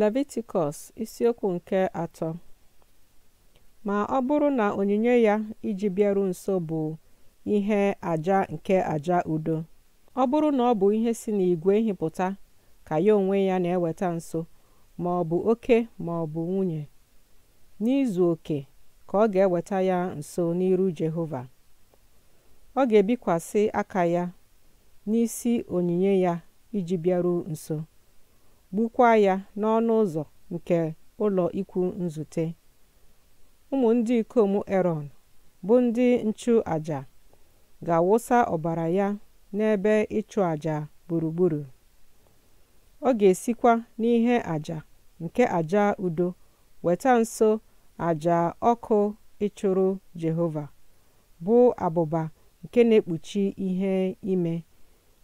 Levitikọs isiokwu nke atọ Ma ọ bụrụ na onyinye ya iji bịaru nso bụ ihe aja nke aja udo ọ bụrụ na ọ bụ ihe si n'igwe nhịpụta ka ya onwe ya na-eweta nso ma ọ bụ oke ma ọ bụ nwunye n'izu oke ka ọ ga-eweta ya nso n'iru Jehova ọ ga-ebikwasị aka ya n'isi onyinye ya iji bịaru nso gbukwaa ya n'ọnụ ụzọ nke ụlọ ikwu nzute ụmụ ndị ikom erọn bụ ndị nchụ aja ga-awụsa ọbara ya n'ebe ịchụ aja gburugburu ọ ga-esikwa n'ihe aja nke aja udo weta nso aja ọkụ ịchụrụ jehova bụ abụba nke na-ekpuchi ihe ime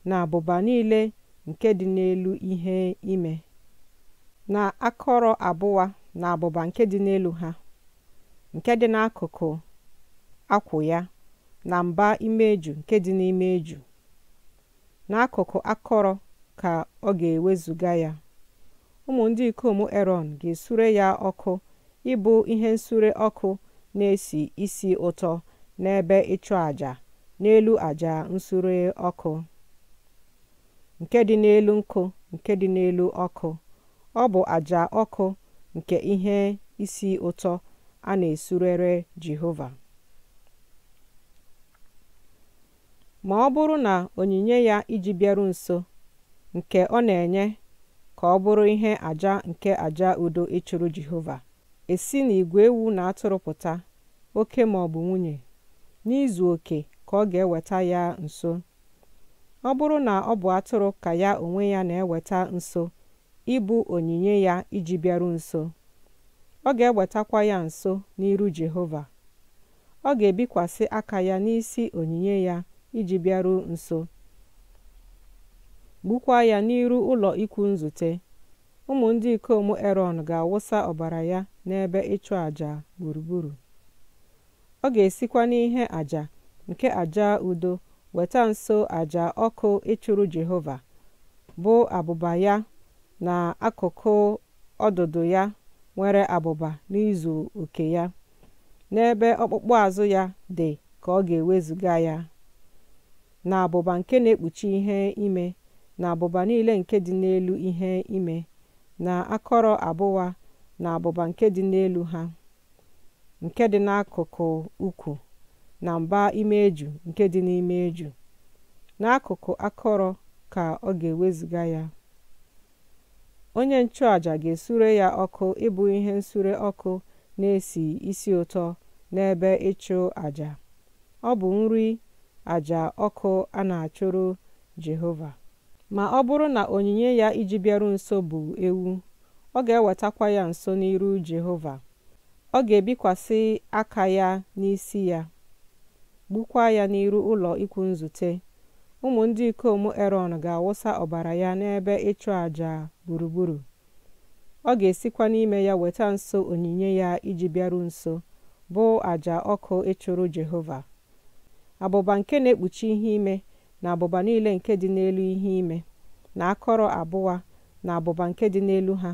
na abụba niile nke dị n'elu ihe ime na akọrọ abụwa na abụba nke dị n'elu ha nke dị n'akụkụ akwụ ya na mba imeju nke dị n'ime eju n'akụkụ akọrọ ka ọ ga-ewezuga ya ụmụ ndị ikom eron ga-esure ya ọkụ ịbụ ihe nsure ọkụ na-esi isi ụtọ n'ebe ịchụ àjà n'elu àjà nsure ọkụ nke dị n'elu nkụ nke dị n'elu ọkụ ọ bụ àjà ọkụ nke ihe isi ụtọ a na-esurere jehova ma ọ bụrụ na onyinye ya iji bịaru nso nke ọ na-enye ka ọ bụrụ ihe àjà nke àjà udo ịchụrụ e jehova esi n'igwe ewu na atụrụ pụta oke ma ọ bụ nwunye n'izu oke ka ọ ga-eweta ya nso ọ bụrụ na ọ bụ atụrụ ka ya onwe ya na-eweta nso ịbụ onyinye ya iji bịaru nso ọ ga-ewetakwa ya nso n'iru Jehova ọ ga-ebikwasị aka ya n'isi onyinye ya iji bịaru nso gbukwaa ya n'iru ụlọ ikwu nzute ụmụ ndị ikom Erọn ga-awụsa ọbara ya n'ebe ịchụ àjà gburugburu ọ ga-esikwa n'ihe àjà nke àja udo weta nso aja ọkụ ịchụrụ jehova bụ abụba ya na akụkụ ọdụdụ ya nwere abụba n'izu oke ya n'ebe ọkpụkpụ azụ ya dị ka ọ ga-ewezụga ya na abụba nke na-ekpuchi ihe ime na abụba niile nke dị n'elu ihe ime na akọrọ abụwa na abụba nke dị n'elu ha nke dị n'akụkụ ukwu na mba eju nke dị n'ime eju n'akụkụ akọrọ ka ọ ga-ewezuga ya onye nchụaja ga-esure ya ọkụ ịbụ ihe nsure ọkụ na-esi isi ụtọ n'ebe ịchụ aja ọ bụ nri aja ọkụ a na-achụrụ jehova ma ọ bụrụ na onyinye ya iji bịaru nso bụ ewu ọ ga-ewetakwa ya nso n'iru jehova ọ ga-ebikwasị aka ya n'isi ya gbukwaa ya n'iru ụlọ ikwu nzute ụmụ ndị ikom erọn ga-awụsa ọbara ya n'ebe ịchụ àjà gburugburu ọ ga-esikwa n'ime ya weta nso onyinye ya iji bịaru nso bụ àjà ọkụ ịchụrụ jehova abụba nke na-ekpuchi ihe ime na abụba niile nke dị n'elu ihe ime na akọrọ abụwa na abụba nke dị n'elu ha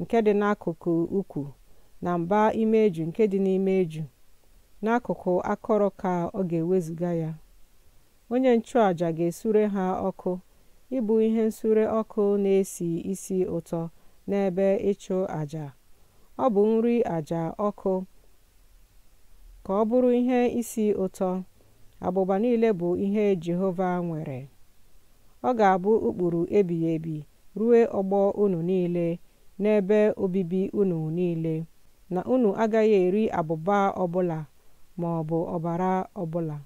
nke dị n'akụkụ ukwu na mba ime eju nke dị n'ime eju n'akụkụ akọrọ ka ọ ga ewezuga ya onye nchụàja ga-esure ha ọkụ ịbụ ihe nsure ọkụ na-esi isi ụtọ n'ebe ịchụ àjà ọ bụ nri àjà ọkụ ka ọ bụrụ ihe isi ụtọ abụba niile bụ ihe jehova nwere ọ ga-abụ ụkpụrụ ebighị ebi ruo ọgbọ unu niile n'ebe obibi unu niile na unu agaghị eri abụba ọbụla ma bụ ọbara ọbụla.